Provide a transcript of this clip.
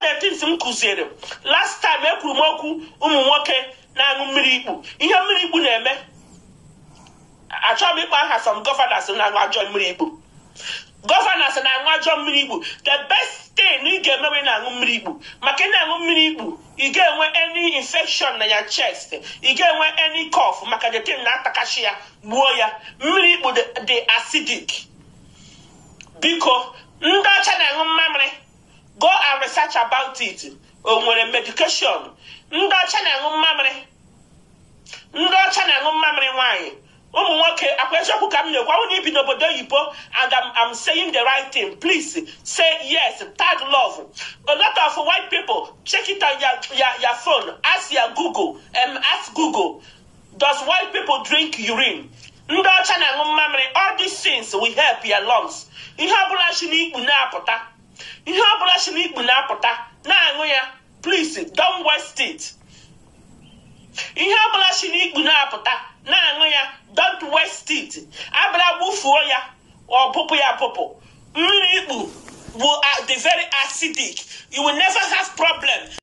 the things m kụziere last time ekwuru m okwu ụmụ nwoke na-aṅụ mmiri ikpu ihe mmiri ikpu na-eme achọghị m ịkpa aha some governors na-aṅụ ajọ mmiri ikpu governors na-aṅụ ajọ mmiri ikpu the best thing ị ga-emewe na-aṅụ mmiri ikpu maka ị na-aṅụ mmiri ikpu ị ga-enwe any infection na ya chest ị ga-enwe any cough maka the thing na-atakachi ya gbuo ya mmiri ikpu dị acidic biko ndị ọcha na-aṅụ mmamịrị research about it o nwere medication ndị ọcha na-aṅụ mmamịrị ndị ọcha na-aṅụ mmamịrị nwaanyị ụmụ nwoke akwa eziokwu ka m na-ekwu ọnwụ na n'obodo oyibo and I'm, I'm saying the right thing please say yes tag love a lot of white people check it on your, your, your phone ask your google um, ask google does white people drink urine ndị ọcha na-aṅụ mmamịrị all these things will help your lungs ihe ọbụla si n'ikpu na-apụta ihe ọ bụla si n'ikpu na-apụta na-aṅụ ya plis don't west steeti ihe ọ ya don't waste gbufuo ya bụpụ ya mmiri ikpu bụ uh, the very acidic you will never have problem